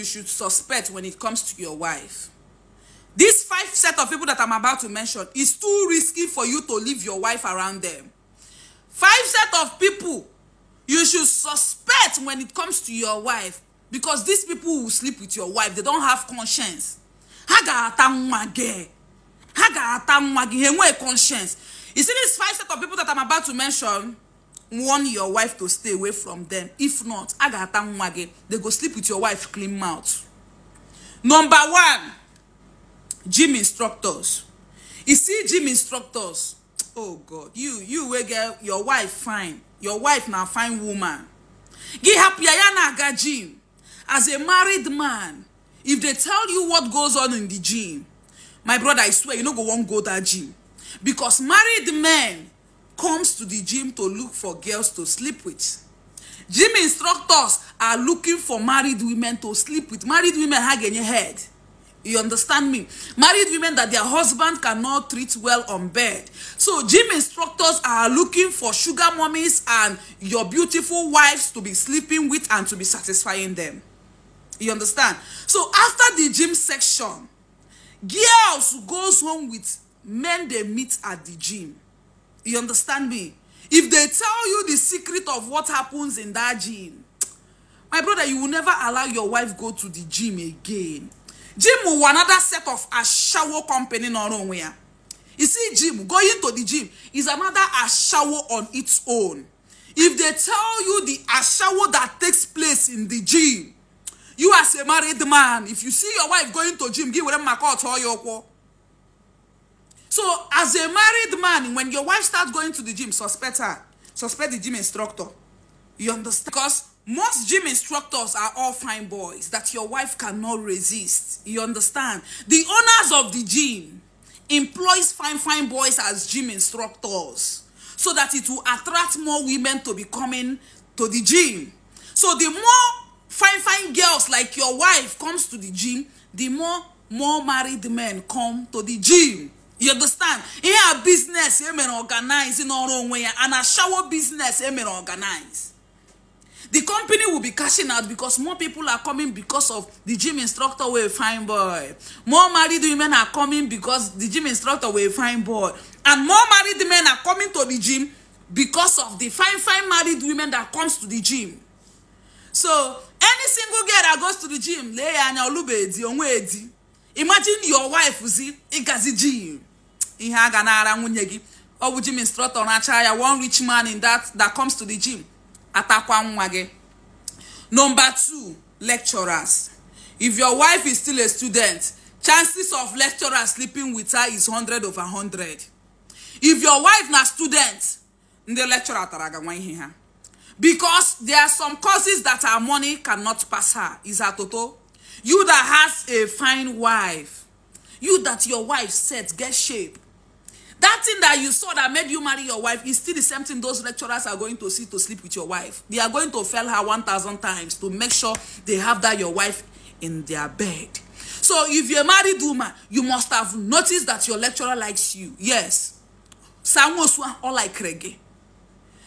you should suspect when it comes to your wife. These five set of people that I'm about to mention is too risky for you to leave your wife around them. Five set of people you should suspect when it comes to your wife because these people will sleep with your wife. They don't have conscience. Haga ga-ata nwa gị. Ha conscience. You see these five set of people that I'm about to mention? warn your wife to stay away from them if not a ga-ata nwa gị they go sleep with your wife clean mouth number one gym instructors you see gym instructors oh god you you wey get your wife fine your wife na fine woman gị hapụ ya ya na-aga gym as a married man if they tell you what goes on in the gym my brother i swear you no go wan go that gym because married men comes to the gym to look for girls to sleep with gym instructors are looking for married women to sleep with married women ha ga head you understand me married women that their husband cannot treat well on bed so gym instructors are looking for sugar mummies and your beautiful wives to be sleeping with and to be satisfying them you understand so after the gym section girls goes home with men they meet at the gym You understand me? If they tell you the secret of what happens in that gym, my brother, you will never allow your wife go to the gym again. Gym will another set of a shower company nowhere. You see, gym, going to the gym is another a shower on its own. If they tell you the shower that takes place in the gym, you as a married man, if you see your wife going to gym, give them a call to your So as a married man, when your wife starts going to the gym, suspect her. Suspect the gym instructor. You understand? Because most gym instructors are all fine boys that your wife cannot resist. You understand? The owners of the gym employs fine, fine boys as gym instructors so that it will attract more women to be coming to the gym. So the more fine, fine girls like your wife comes to the gym, the more more married men come to the gym you understand ihe a business, emere organize n'ọrụ onwe ya and a shawo biznes emere organize the company will be cashing out because more people are coming because of the gym instructor wey fine boy more married women are coming because the gym instructor wey fine boy and more married men are coming to the gym because of the fine fine married women that comes to the gym so any single girl that goes to the gym lee ya anya olube edi imagine your wife zi ịgazi gym ihe a ga na-ara nwunye gị ọ bụ gym instructor na-acha ya one rich man in that that comes to the gym atakwa nwa gị number two lecturers if your wife is still a student chances of lecturer sleeping with her is 100 over 100 if your wife na student ndị lecturer tara ga nwa ihe ha because there are some causes that our money cannot pass her is her toto you that has a fine wife you that your wife set get shape that thing that you saw that made you marry your wife is still the same thing those lecturers are going to see to sleep with your wife they are going to fail her 1000 times to make sure they have that your wife in their bed so if you're a married woman you must have noticed that your lecturer likes you yes sanwosu or like reggae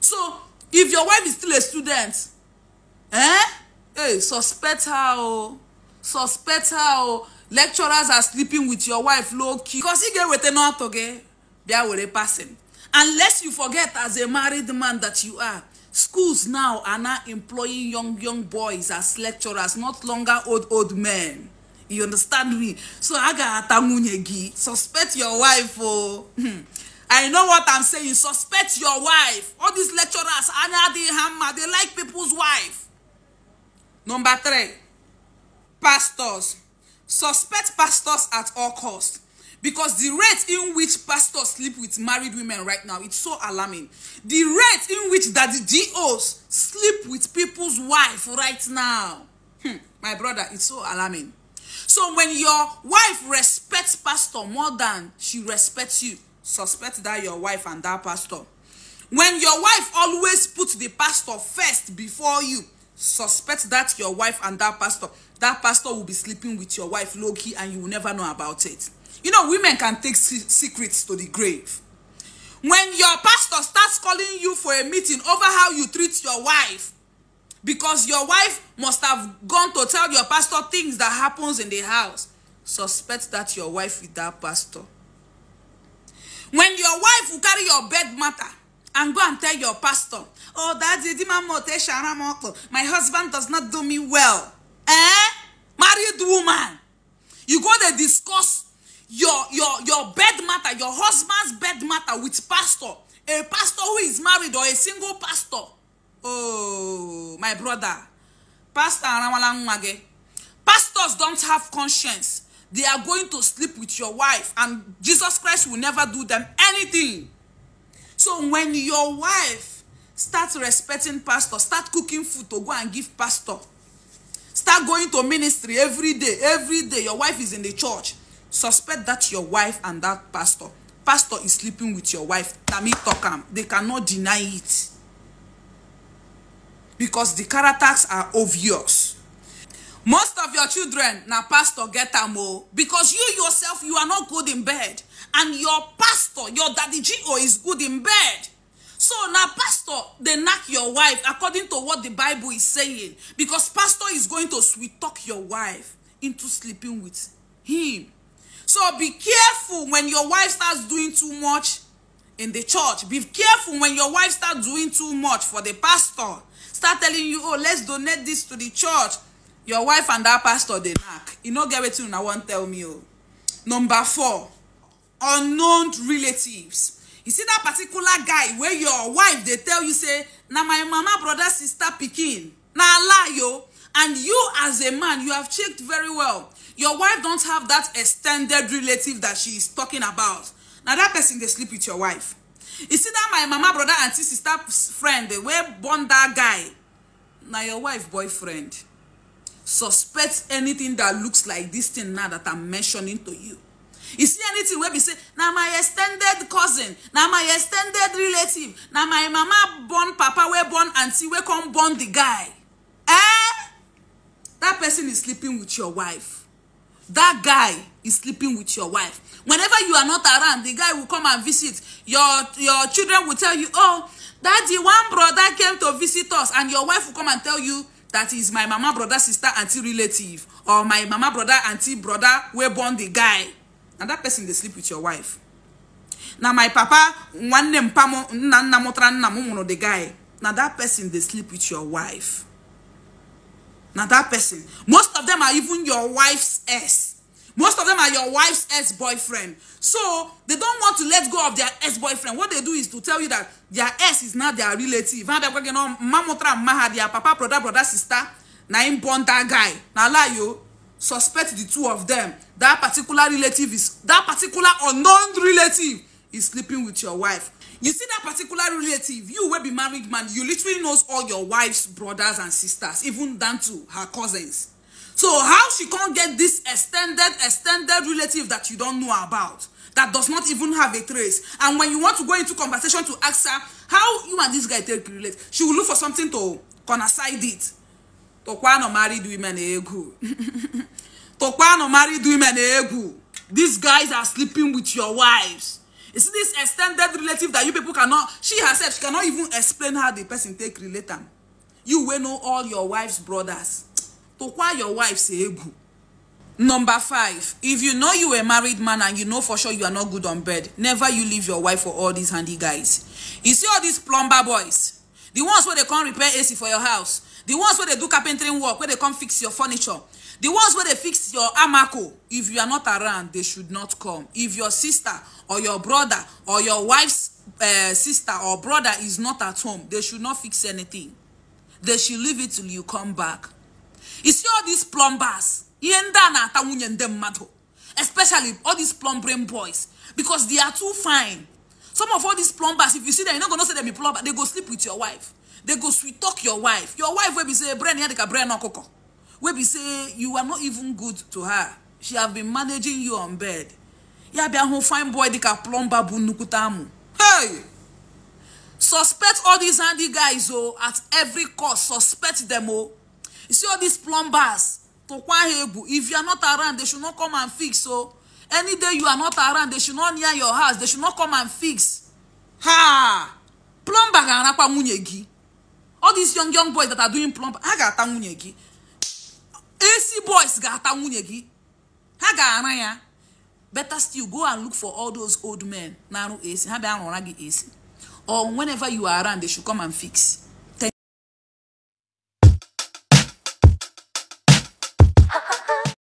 so if your wife is still a student eh hey suspect her oh suspect her oh lecturers are sleeping with your wife low key because you get with another auto biawere passing unless you forget as a married man that you are schools now are now employing young young boys as lecturers not longer old old men you understand me so aga atanwunye gi suspect your wife oh hmm. i know what i'm saying suspect your wife all these lecturers anya the hammer they like people's wife number three pastors suspect pastors at all costs because the rate in which pastors sleep with married women right now it's so alarming the rate in which that the dos sleep with people's wife right now hmm, my brother it's so alarming so when your wife respects pastor more than she respects you suspect that your wife and that pastor when your wife always puts the pastor first before you suspect that your wife and that pastor that pastor will be sleeping with your wife Loki, and you will never know about it you know women can take secrets to the grave when your pastor starts calling you for a meeting over how you treat your wife because your wife must have gone to tell your pastor things that happens in the house suspect that your wife with that pastor when your wife will carry your bed matter and go and tell your pastor, oh, that's daddy, my husband does not do me well. Eh? Married woman. You go to discuss your, your, your bed matter, your husband's bed matter with pastor. A pastor who is married or a single pastor. Oh, my brother. Pastor Pastors don't have conscience. They are going to sleep with your wife and Jesus Christ will never do them anything. So when your wife starts respecting pastor, start cooking food to go and give pastor, start going to ministry every day, every day your wife is in the church, suspect that your wife and that pastor, pastor is sleeping with your wife, Tami Tokam, they cannot deny it. Because the characters are obvious most of your children na pastor get am o oh. because you yourself you are not good in bed and your pastor your daddy go is good in bed so na pastor dey knack your wife according to what the bible is saying because pastor is going to sweet talk your wife into sleeping with him so be careful when your wife starts doing too much in the church be careful when your wife start doing too much for the pastor start telling you oh let's donate this to the church your wife and that pastor dey knack e no get wetin una wan tell me o number four unknown relatives you see that particular guy wey your wife dey tell you say na my mama brother sister pikin na lie o and you as a man you have checked very well your wife don't have dat extended relative that she is talking about na that person dey sleep with your wife you see that my mama brother auntie sister friend wey born that guy na your wife boyfriend suspect anything that looks like this thing now that i'm mentioning to you you see anything wey be say na my extended cousin na my extended relative na my mama born papa wey born auntie wey come born the guy eh That person is sleeping with your wife That guy is sleeping with your wife whenever you are not around the guy will come and visit your your children will tell you oh daddy one brother came to visit us and your wife will come and tell you that is my mama brother sister auntie relative or my mama brother auntie brother wey born the guy na that person dey sleep with your wife na my papa nwanne mpa m nna nna mụtara nna m nwụrụ the guy na that person dey sleep with your wife na that person most of them are even your wife's ex most of them are your wife's ex-boyfriend so they don't want to let go of their ex-boyfriend what they do is to tell you that their ex is not their relative and they're you know mamotra maha their papa brother brother sister na him born that guy na lie o suspect the two of them that particular relative is that particular unknown relative is sleeping with your wife you see that particular relative you wey be married man you literally knows all your wife's brothers and sisters even down to her cousins So how she can't get this extended, extended relative that you don't know about, that does not even have a trace. And when you want to go into conversation to ask her, how you and this guy take relate, she will look for something to coincide it. To no married women ego. To no married women ego. These guys are sleeping with your wives. Is this extended relative that you people cannot, she herself, she cannot even explain how the person take relate them. You will know all your wife's brothers tụkwa your wife say egwu number five if you know you a married man and you know for sure you are not good on bed never you leave your wife for all these handy guys you see all these plumber boys the ones wey dey come repair ac for your house the ones wey dey do carpentering work wey dey come fix your furniture the ones wey dey fix your amako if you are not around they should not come if your sister or your brother or your wife's uh, sister or brother is not at home they should not fix anything they should leave it till you come back You see all these plumbers, ihe ndị a na-ata nwunye ndị mmadụ especially all these plumbering boys because they are too fine. Some of all these plumbers, if you see them, you're not gonna say them be plumber, they go sleep with your wife. They go sweet talk your wife. Your wife will be say, brain here, they can brain okoko. Will be say, you are not even good to her. She have been managing you on bed. Yeah, be a fine boy, they can plumber bu nukutamu. Hey! Suspect all these handy guys, oh, at every cost. Suspect them, oh you see all these plumbers tokwa hebu if you are not around they should not come and fix so any day you are not around they should not near your house they should not come and fix ha plumber ga-arakwa nwunye all these young young boys that are doing plumber ha ga-ata nwunye ac boys ga-ata nwunye gị ha ga-ara ya better still go and look for all those old men na ac ha bịa rụra ac or whenever you are around they should come and fix